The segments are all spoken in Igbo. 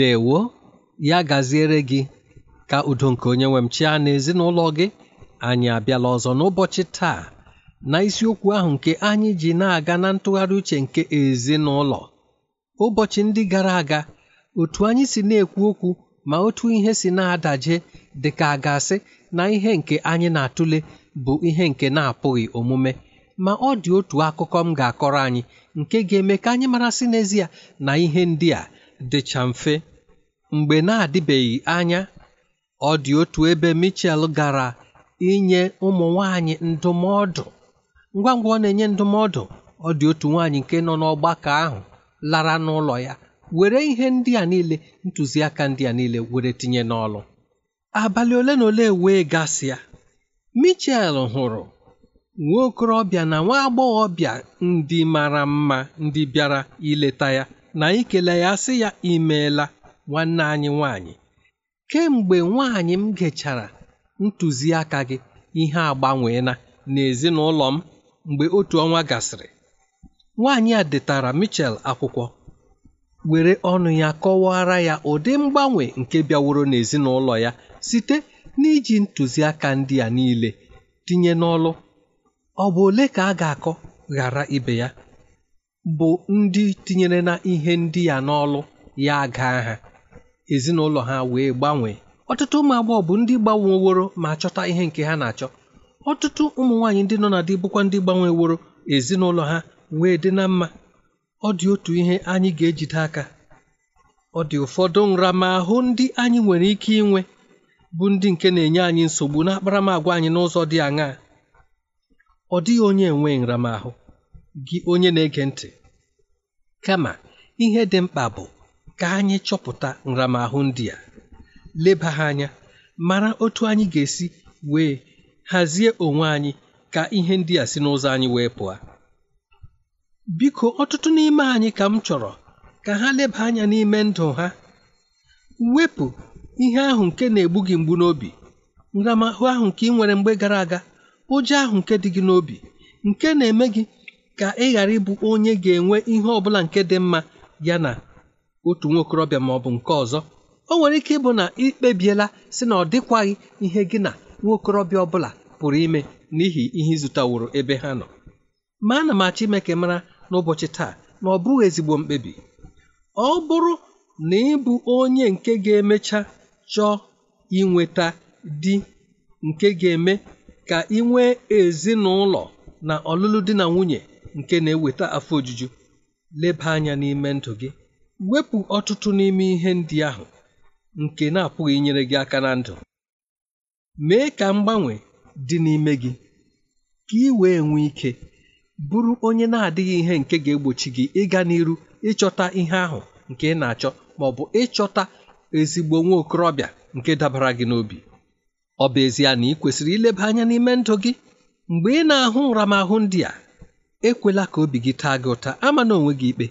ndewo ya gaziere gị ka udo nke onye nwe m chịa na ezinụlọ gị anyị abịala ọzọ n'ụbọchị taa na isiokwu ahụ nke anyị ji na-aga na ntụgharị uche nke ezinụlọ ụbọchị ndị gara aga otu anyị si na-ekwu okwu ma otu ihe si na-adaje dị ka gasị na ihe nke anyị na-atụle bụ ihe nke na-apụghị omume ma ọ dị otu akụkọ m ga-akọrọ anyị nke ga-eme ka anyị marasị n'ezie na ihe ndị a dịcha mfe Mgbe na-adịbeghị anya, ọ dị otu ebe michel gara inye ụmụ nwanyị ndụmọdụ. Ngwa ngwa ọ na-enye ndụmọdụ, ọ dị otu nwanyị nke nọ n'ọgbakọ ahụ lara n'ụlọ ya were ihe ndị a niile ntụziaka ndị a niile were tinye n'ọlụ. Abalị ole na ole wee gasịa, michel hụrụ nwa okorobịa na nwa agbọghọbịa ndị mara mma ndị bịara ileta ya na ikele ya sị ya imeela nwanne anyị nwanyị kemgbe nwanyị m gechara ntụziaka gị ihe agbanweela n'ezinụlọ m mgbe otu ọnwa gasịrị nwaanyị a detara Mitchell akwụkwọ were ọnụ ya kọwara ya ụdị mgbanwe nke bịaworo n'ezinụlọ ya site n'iji ntụziaka ndị a niile tinye n'ọlụ ọ bụ ole ka a ga-akọ ghara ibe ya bụ ndị tinyere na ihe ndị a n'ọlụ ya gaa ha ezinụlọ ha wee gbanwee ọtụtụ ụmụ agbọghọ bụ ndị gbanweworo ma chọta ihe nke ha na-achọ ọtụtụ ụmụ nwaanyị ndị nọ na dị bụkwa ndị gbanweworo ezinụlọ ha wee dị na mma ọ dị otu ihe anyị ga-ejide aka ọ dị ụfọdụ nramahụ ndị anyị nwere ike inwe bụ ndị nke na-enye anyị nsogbu na akparamagwa anyị n'ụzọ dị aṅaa ọ dịghị onye enweghị nramahụ gị onye na-ege ntị kama ihe dị mkpa bụ ka anyị chọpụta nramahụ ndị a leba ha anya mara otu anyị ga-esi wee hazie onwe anyị ka ihe ndị a si n'ụzọ anyị wee pụọ biko ọtụtụ n'ime anyị ka m chọrọ ka ha leba anya n'ime ndụ ha wepụ ihe ahụ nke na-egbu gị mgbu n'obi nramahụ ahụ nke ị nwere mgbe gara aga ụjọ ahụ nke dị gị n'obi nke na-eme gị ka ị ghara ịbụ onye ga-enwe ihe ọ bụla nke dị mma ya na otu nwa okorobịa ma ọ bụ nke ọzọ o nwere ike ịbụ na ikpebiela si na ọ dịkwaghị ihe gị na nwa okorobịa bụla pụrụ ime n'ihi ihe ịzụtaworo ebe ha nọ ma ana m achọ ime ka mara n'ụbọchị taa na ọ bụghị ezigbo mkpebi ọ bụrụ na ịbụ onye nke ga-emecha chọọ inweta di nke ga-eme ka ị nwee ezinụlọ na ọlụlụ di na nwunye nke na-eweta afọ ojuju leba anya n'ime ndụ gị Wepụ ọtụtụ n'ime ihe ndị ahụ nke na-apụghị inyere gị aka na ndụ. Mee ka mgbanwe dị n'ime gị ka ị wee nwee ike bụrụ onye na-adịghị ihe nke ga-egbochi gị ịga n'iru ịchọta ihe ahụ nke ị na-achọ ma ọ bụ ịchọta ezigbo nwa okorobịa nke dabara gị n'obi. Ọ bụ ezie na ị kwesịrị ileba anya n'ime ndụ gị mgbe ị na-ahụ nramahụ ndị a ekwela ka obi gị taa gị ụta ama na onwe gị ikpe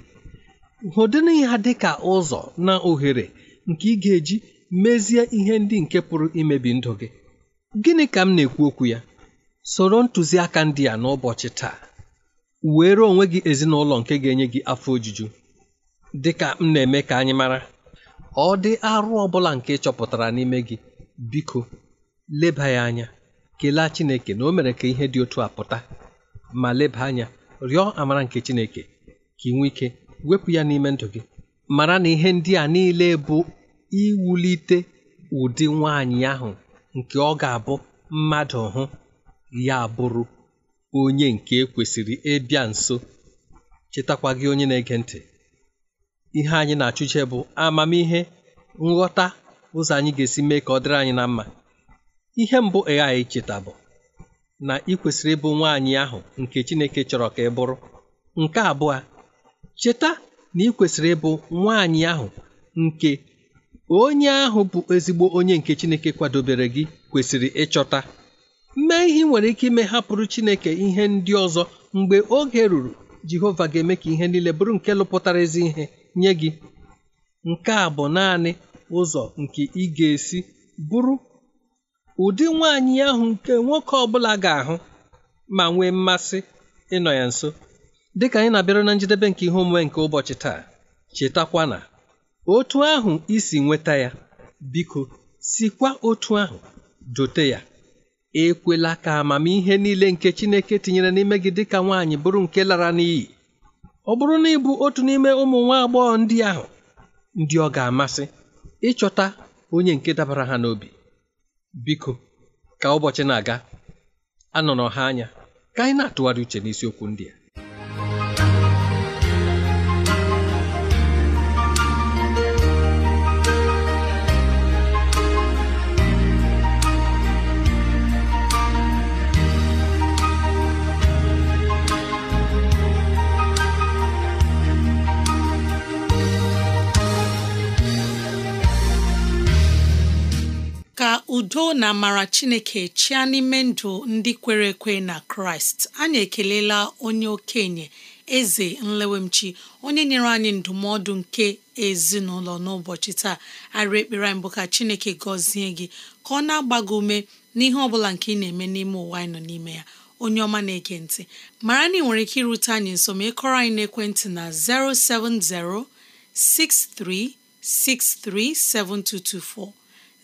hụdịna ya dị ka ụzọ na ohere nke ị ga-eji mezie ihe ndị nke pụrụ imebi ndụ gị gịnị ka m na-ekwu okwu ya soro ntụziaka ndị a n'ụbọchị taa were onwe gị ezinụlọ nke ga-enye gị afọ ojuju dị ka m na-eme ka anyị mara ọ dị arụ ọ bụla nke chọpụtara n'ime gị biko leba ya anya kelee Chineke na o mere ka ihe dị otu a pụta ma leba anya rịọ amara nke Chineke ka ị nwee ike wepụ ya n'ime ndụ gị mara na ihe ndị a niile bụ iwulite ụdị nwaanyị ahụ nke ọ ga-abụ mmadụ hụ ya bụrụ onye nke e kwesịrị ịbịa nso chetakwa gị onye na-ege ntị ihe anyị na-achụche bụ amamihe nghọta ụzọ anyị ga-esi mee ka ọ dịrị anyị na mma ihe mbụ ị ghaghị icheta bụ na ị kwesịrị ịbụ nwaanyị ahụ nke Chineke chọrọ ka ị bụrụ nke abụọ Cheta na ị kwesịrị ịbụ nwaanyị ahụ nke onye ahụ bụ ezigbo onye nke Chineke kwadobere gị kwesịrị ịchọta. Mee ihe nwere ike ime hapụrụ Chineke ihe ndị ọzọ mgbe oge ruru Jehova ga-eme ka ihe niile bụrụ nke lụpụtara ezi ihe nye gị. Nke a bụ naanị ụzọ nke ị ga-esi bụrụ ụdị nwaanyị ahụ nke nwoke ọ bụla ga-ahụ ma nwee mmasị ịnọ ya nso. dịka anyị na-abịara na njedebe nke ihe omume nke ụbọchị taa chetakwa na otu ahụ isi nweta ya biko sikwa otu ahụ dote ya ekwela ka amamihe niile nke Chineke tinyere n'ime gị dịka nwaanyị bụrụ nke lara n'iyi ọ bụrụ na ịbụ otu n'ime ụmụ nwa agbọghọ ndị ahụ ndị ọ ga-amasị ịchọta onye nke dabara ha n'obi biko ka ụbọchị na-aga anọrọ ha anya ka anyị na-atụgharị uche n'isiokwu ndị a udo na amara chineke chịa n'ime ndụ ndị kwere ekwe na kraịst anyị ekelela onye okenye eze nlewemchi onye nyere anyị ndụmọdụ nke ezinụlọ n'ụbọchị taa arị ekpere anyị bụ ka chineke gọzie gị ka ọ na-agba gị ume n'ihe ọ bụla nke ị na-eme n'ime ụwa anyị nọ n'ime ya onye ọma na-ege ntị mara na ị nwere ike irute anyị nso ma ịkọrọ anyị n'ekwentị na 070 6363 7224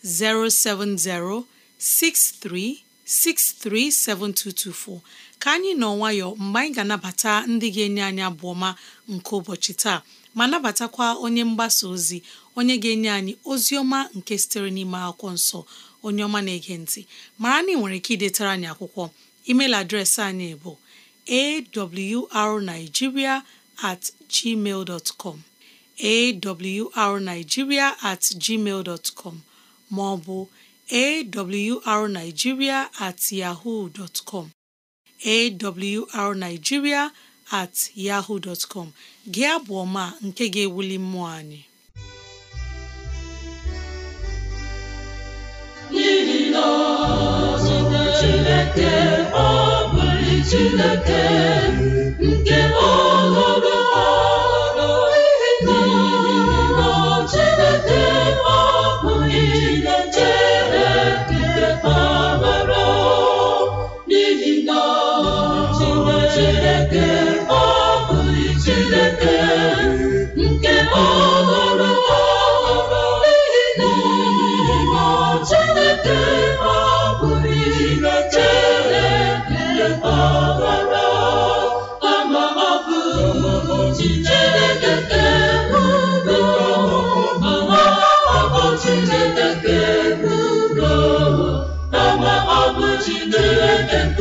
07063637224 ka anyị nọ nwayọ mgbe anyị ga-anabata ndị ga-enye anyị abụọ ma nke ụbọchị taa ma nabatakwa onye mgbasa ozi onye ga-enye anyị ozi ọma nke sitere n'ime akwụkwọ nsọ onye ọma na-ege ntị mara na ị nwere ike idetara anyị akwụkwọ email adreesị anyị bụ awrnigeria at gmail com awrnigeria at gmail com ma ọ bụ awrnigeria at yahoo dot com awrnigeria at yahoo dot com gị abụ ọma nke ga-ewuli mmụọ anyị n'ihi na Chineke ọ bụghị Chineke nke ọhụrụ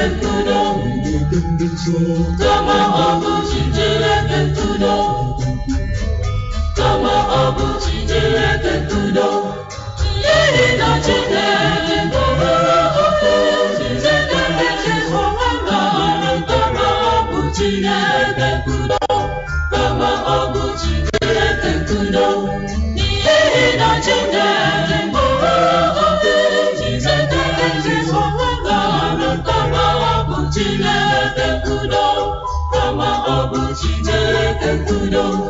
Chineke ntụdo kama ọ bụ chi Chineke ntụdo kama ọ bụ tanto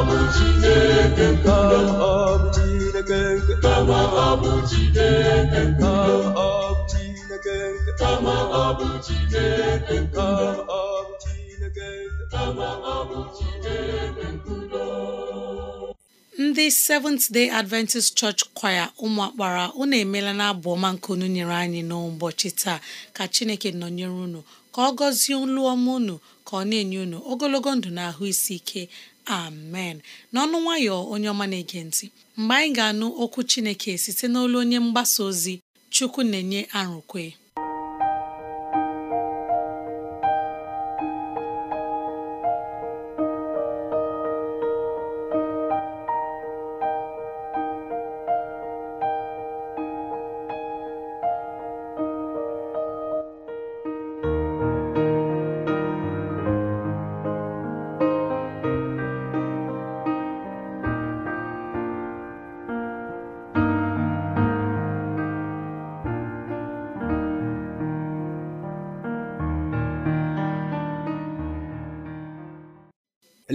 Baba Chineke bụ Chineke nke nkudo ndị Seventh Day Adventist Church Choir ụmụakpara akpara unu emeela na abụ nke unu nyere anyị n'ụbọchị taa ka Chineke nọnyere unu ka ọ gọzie olu ọma unu ka ọ na-enye unu ogologo ndụ na ahụ isi ike amen n'ọnụ nwayọ onye ọma na-ege ntị mgbe anyị ga-anụ okwu Chineke site n'olu onye mgbasa ozi Chukwu na-enye arụkwe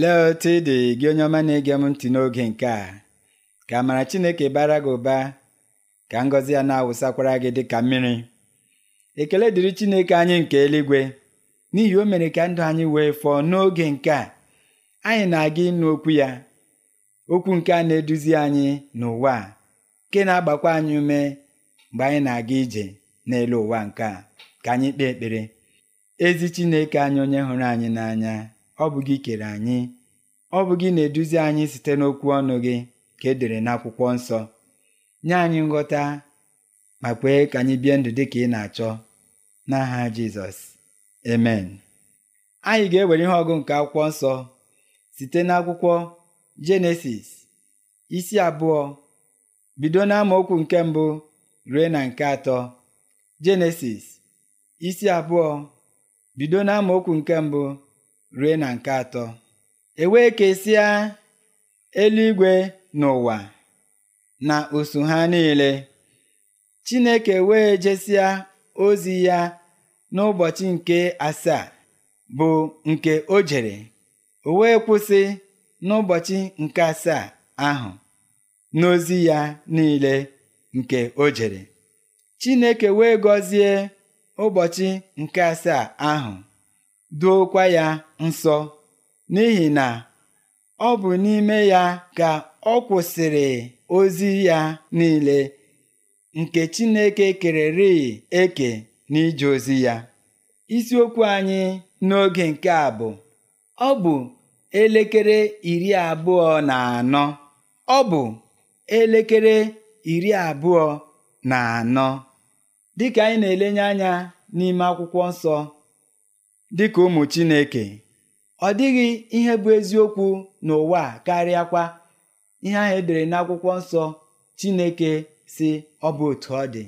Lee otu ị dị gị onye ọma na-ege m ntị n'oge nke a ka amara Chineke bara gị ụba ka ngọzi ya na-awụsakwara gị dị ka mmiri ekele dịrị Chineke anyị nke eluigwe n'ihi o mere ka ndụ anyị wee fọọ n'oge nke a anyị na-aga ịnụ okwu ya okwu nke a na-eduzi anyị n'ụwa nke na-agbakwa anyị ume mgbe anyị na-aga ije n'elu ụwa nke a ka anyị kpee ekpere ezi Chineke anyị onye hụrụ anyị n'anya ọ bụ gị kere anyị ọ bụ gị na-eduzi anyị site n'okwu ọnụ gị ka e dere n'akwụkwọ nsọ nye anyị nghọta ma kwee ka anyị bie ndụ dị ka ị na-achọ n'aha Jizọs emen anyị ga-ewere ihe ọgụ nke akwụkwọ nsọ site n'akwụkwọ Jenesis isi abụọ bido okwu nke mbụ ruo na nke atọ Jenesis isi abụọ bido okwu nke mbụ rue na nke atọ e wee kesịa eluigwe n'ụwa na usu ha niile Chineke wee jesịa ozi ya n'ụbọchị nke asaa bụ nke o jere o wee kwụsị n'ụbọchị nke asaa ahụ n'ozi ya niile nke o jere Chineke wee gọzie ụbọchị nke asaa ahụ duokwa ya nsọ n'ihi na ọ bụ n'ime ya ka ọ kwụsịrị ozi ya niile nke Chineke kererịị eke n'ije ozi ya isiokwu anyị n'oge nke a bụ ọ bụ elekere iri abụọ na anọ ọ bụ elekere iri abụọ na anọ dịka anyị na-elenye anya n'ime akwụkwọ nsọ dịka ụmụ Chineke ọ dịghị ihe bụ eziokwu n'ụwa karịakwa ihe ahụ edere n'akwụkwọ nsọ Chineke si ọ bụ otu ọ dị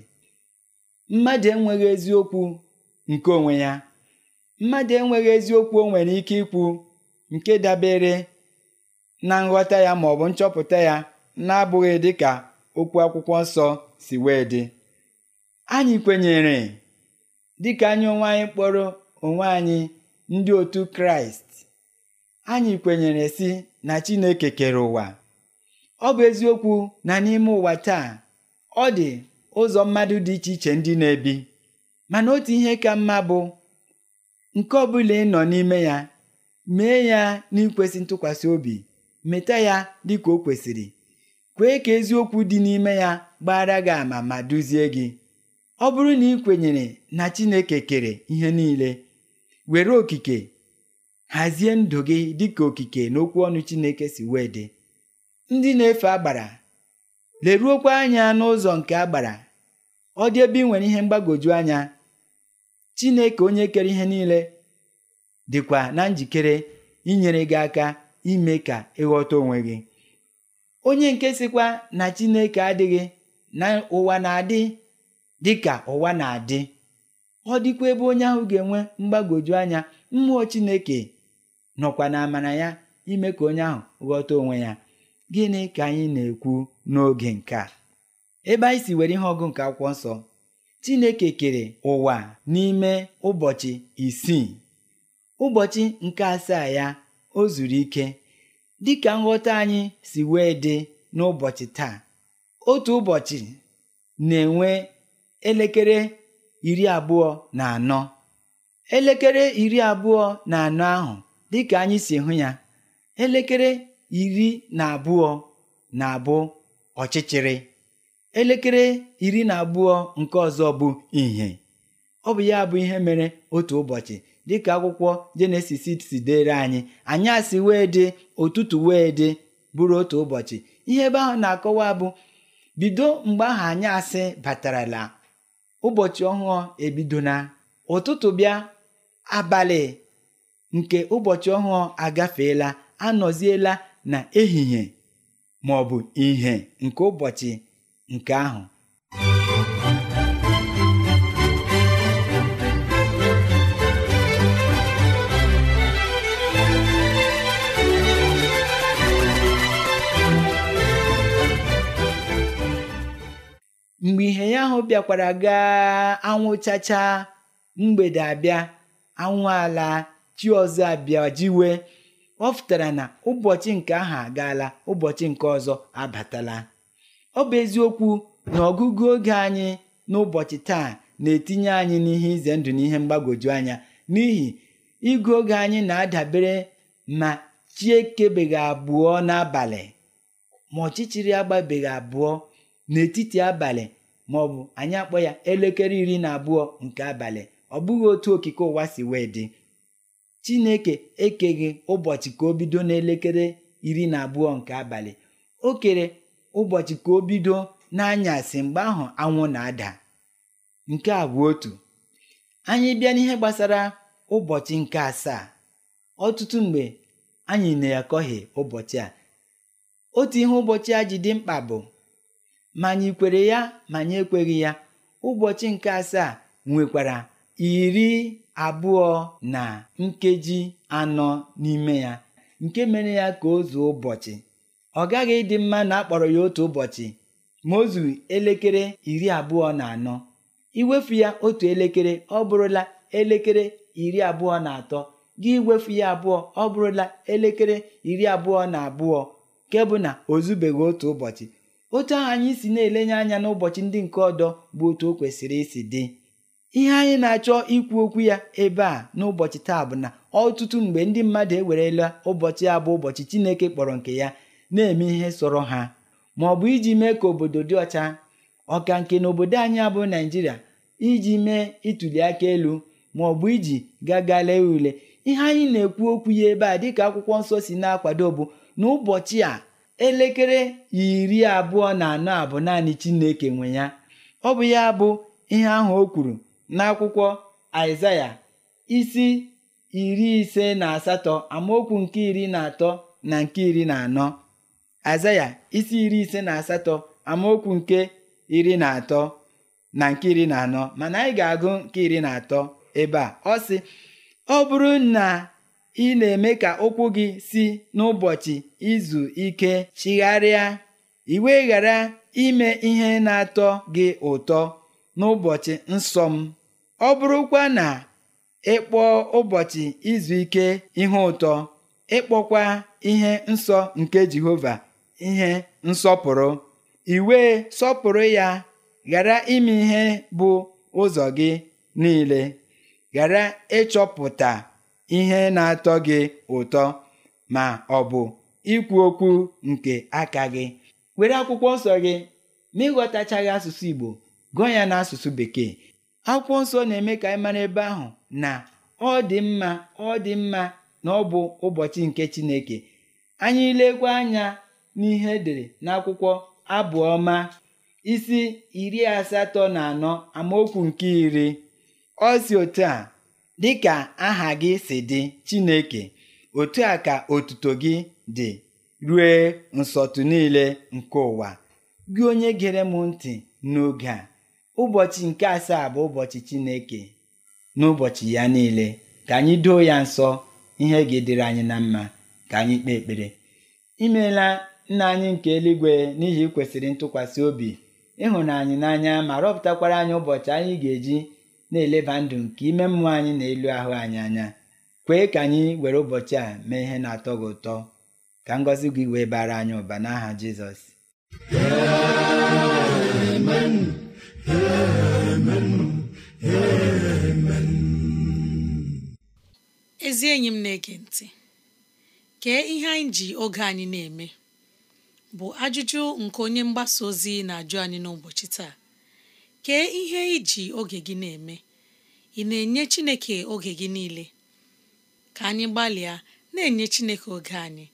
mmadụ enweghị eziokwu nke onwe ya mmadụ enweghị eziokwu o nwere ike ikwu nke dabere na nghọta ya ma ọ bụ nchọpụta ya na-abụghị dịka okwu akwụkwọ nsọ si wee dị anyị kwenyere dịka anyị onwe anyị kpọrọ onwe anyị ndị otu kraịst anyị kwenyere si na chineke kere ụwa ọ bụ eziokwu na n'ime ụwa taa ọ dị ụzọ mmadụ dị iche iche ndị na-ebi mana otu ihe ka mma bụ nke ọ bụla ị nọ n'ime ya mee ya n'ikwesị ntụkwasị obi meta ya dị ka o kwesịrị kwee ka eziokwu dị n'ime ya gbara gị ama ma duzie gị ọ bụrụ na ị kwenyere na Chineke kere ihe niile were okike hazie ndụ gị dịka okike n'okwu ọnụ Chineke si wee dị ndị na-efe agbara leruokwa anya n'ụzọ nke agbara ọ dị ebe ị nwere ihe mgbagwoju anya Chineke onye kere ihe niile dịkwa na njikere inyere gị aka ime ka ịghọta onwe gị onye nke sịkwa na Chineke adịghị na ụwa na-adị dịka ụwa na-adị ọ dịkwa ebe onye ahụ ga-enwe mgbagwoju anya mmụọ Chineke nọkwa na amara ya ime ka onye ahụ ghọta onwe ya gịnị ka anyị na-ekwu n'oge nke a ebe anyị si were ihe ọgụ nke akwụkwọ nsọ Chineke kere ụwa n'ime ụbọchị isii ụbọchị nke asaa ya o zuru ike dịka nghọta anyị si wee dị n'ụbọchị taa otu ụbọchị na-enwe elekere iri abụọ na anọ elekere iri abụọ na anọ ahụ dịka anyị si hụ ya elekere iri na abụọ na-abụ ọchịchịrị elekere iri na abụọ nke ọzọ bụ ìhè ọ bụ ya bụ ihe mere otu ụbọchị dịka akwụkwọ jenesis si dere anyị anyasị wee dị ụtụtụ wee dị bụrụ otu ụbọchị ihe ebe ahụ na-akọwa bụ bido mgbe ahụ anyasị batarala ụbọchị ọhụụ ebido na ụtụtụ bịa abalị nke ụbọchị ọhụụ agafeela anọziela na ehihie ma ọ bụ ìhè nke ụbọchị nke ahụ mgbe ihe ya ahụ bịakwara gaa anwụ chacha mgbede abịa anwụ ala chi ọzọ abịa jiwe ọ fụtara na ụbọchị nke ahụ agaala ụbọchị nke ọzọ abatala ọ bụ eziokwu na ọgụgụ oge anyị n'ụbọchị taa na-etinye anyị n'ihe ize ndụ na ihe mgbagwoju anya n'ihi igụ oge anyị na-adabere ma chi ekebeghị abụọ n'abalị ma ọchịchịrị agbabeghị abụọ n'etiti abalị bụ anyị akpọ ya elekere iri na abụọ nke abalị ọ bụghị otu okike ụwa si wee dị chineke ekeghị ụbọchị ka o bido n'elekere iri na abụọ nke abalị o kere ụbọchị ka o bido n'anyasị mgbe ahụ anwụ na-ada nke a bụ otu anyị bịa n'ihe gbasara ụbọchị nke asaa ọtụtụ mgbe anyị na-akọghị ụbọchị a otu ihe ụbọchị a ji dị mkpa bụ ma anyị kwere ya ma anyị ekweghị ya ụbọchị nke asaa nwekwara iri abụọ na nkeji anọ n'ime ya nke mere ya ka o zuo ụbọchị ọ gaghị ịdị mma na akpọrọ ya otu ụbọchị ma o zuru elekere iri abụọ na anọ iwefu ya otu elekere ọ bụrụla elekere iri abụọ na atọ gị iwefu ya abụọ ọ bụrụla elekere iri abụọ na abụọ nke bụ na o zubeghị otu ụbọchị otu ahụ anyị si na-elenye anya n'ụbọchị ndị nke ọdọ bụ otu o kwesịrị isi dị ihe anyị na-achọ ikwu okwu ya ebe a n'ụbọchị taa bụ na ọtụtụ mgbe ndị mmadụ ewerela ụbọchị a bụ ụbọchị Chineke kpọrọ nke ya na-eme ihe sọrọ ha ma ọ bụ iji mee ka obodo dị ọcha ọka nke na obodo anyị abụ naijiria iji mee ịtụli aka elu ma ọ bụ iji gagala lee ule ihe anyị na-ekwu okwu ya ebe a dịka akwụkwọ nsọ si na-akwado bụ n'ụbọchị a elekere iri abụọ na anọ a bụ naanị Chineke nwe ya ọ bụ ya bụ ihe ahụ o kwuru n'akwụkwọ Aịzaya isi iri ise na asatọ amaokwu nke iri na atọ na nke iri na anọ Aịzaya isi iri ise na asatọ amaokwu nke iri na atọ na nke iri na anọ mana anyị ga-agụ nke iri na atọ ebe a ọ sị ọ bụrụ na ị na-eme ka ụkwụ gị si n'ụbọchị izu ike chigharịa iwe ghara ime ihe na-atọ gị ụtọ n'ụbọchị nsọ m ọ bụrụkwa na ịkpọ ụbọchị izu ike ihe ụtọ ịkpọkwa ihe nsọ nke Jehova ihe nsọpụrụ iwe sọpụrụ ya ghara ime ihe bụ ụzọ gị niile ghara ịchọpụta ihe na-atọ gị ụtọ ma ọ bụ ikwu okwu nke aka gị were akwụkwọ nsọ gị ma ịghọtachaghị asụsụ Igbo gụọ ya n'asụsụ Bekee akwụkwọ nsọ na-eme ka anyị mara ebe ahụ na ọ dị mma ọ dị mma na ọ bụ ụbọchị nke Chineke anyị lekwa anya n'ihe edere n'akwụkwọ abụọma isi iri asatọ na anọ amaokwu nke iri ọ si otu a dịka aha gị si dị Chineke otu a ka otuto gị dị rue nsọtụ niile nke ụwa gị onye gere m ntị n'oge a ụbọchị nke asaa bụ ụbọchị Chineke n'ụbọchị ya niile ka anyị doo ya nsọ ihe ga-edere anyị na mma ka anyị kpee ekpere imeela nna anyị nke eluigwe n'ihi kwesịrị ntụkwasị obi ịhụnanyị n'anya ma rọpụtakwara anyị ụbọchị anyị ga-eji na-eleba ndụ nke ime mmụọ anyị na elu ahụ anyị anya kwee ka anyị were ụbọchị a mee ihe na-atọ gị ụtọ ka ngọzi gị wee bara anyị ụba n'aha Jizọs ezi enyi m na-ege ntị kee ihe anyị ji oge anyị na-eme bụ ajụjụ nke onye mgbasa ozi na-ajụ anyị n'ụbọchị taa kee ihe iji oge gị na-eme ị na-enye Chineke oge gị niile ka anyị gbalịa na-enye Chineke oge anyị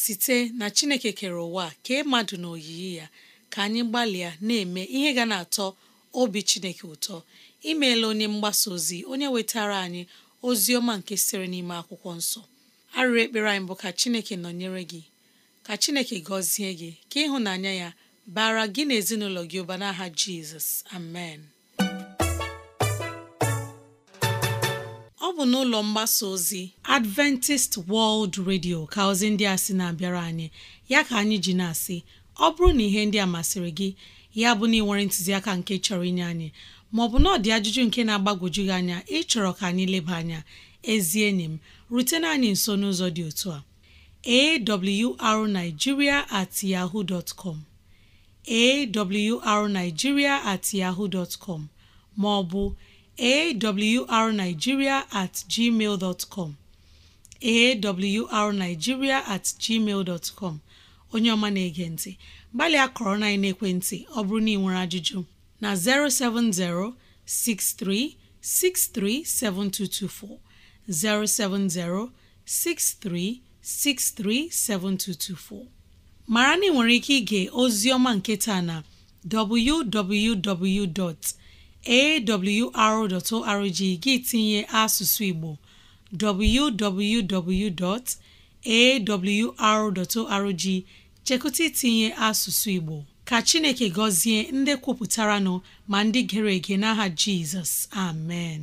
site na Chineke kere ụwa kee mmadụ na oyiyi ya ka anyị gbalịa na-eme ihe ga na-atọ obi Chineke ụtọ imeela onye mgbasa ozi onye wetara anyị ozi ọma nke siri n'ime akwụkwọ nsọ arịrị ekpere anyị bụ ka Chineke nọnyere gị ka Chineke gọzie gị ka ịhụnanya ya bara gị na ezinụlọ gị ụba n'aha jizọs amen ọ bụ n'ụlọ mgbasa ozi adventist world radio ka ozi ndị a sị na-abịara anyị ya ka anyị ji na-asị ọ bụrụ na ihe ndị a masịrị gị ya bụ na ịnwere ntụziaka nke chọrọ inye anyị maọbụ na ọdị ajụjụ nke na-agbagwoju gị anya ịchọrọ ka anyị leba anya ezi enyi m rutena anyị nso n'ụzọ dị otu a awrnigeria at yahoo dot com awrnigeria at yahoo dot com ma ọ bụ awrnigeria at gmail dot com awrnigeria at gmail dot com onye ọma na-ege ntị gbalịa kọrọ na ekwentị ọ bụrụ na ị nwere ajụjụ na 070 6363 7224 070 6363 mara na ị nwere ike ige ozi ọma nke na www.awr.org gị tinye asụsụ Igbo www.awr.org chekụta itinye asụsụ Igbo ka Chineke gọzie ndị kwupụtara nọ ma ndị gere ege n'aha Jizọs amen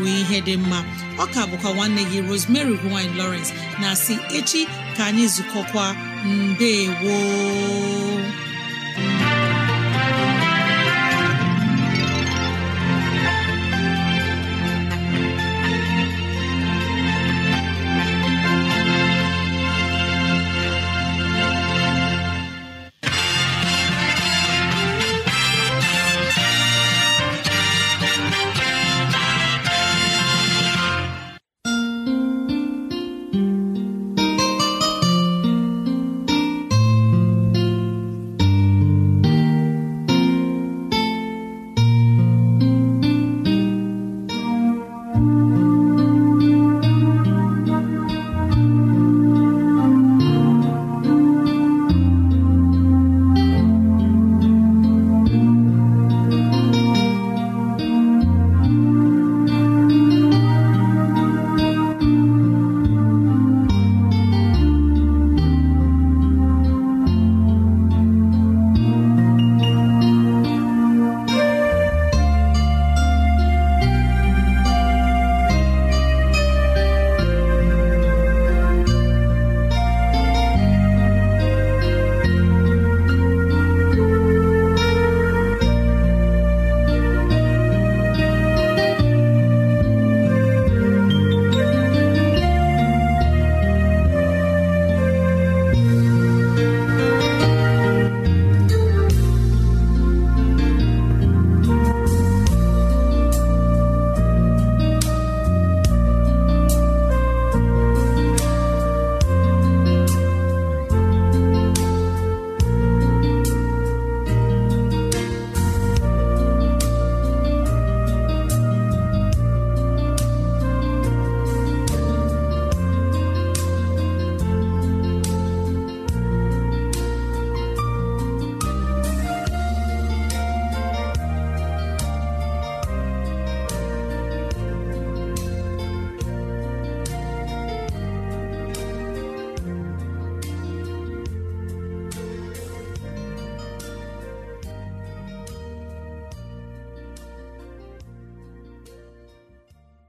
wee ihe dị mma ọ ka bụkwa nwanne gị Rosemary gine Lawrence na si echi ka anyị zukọkwa mbe woo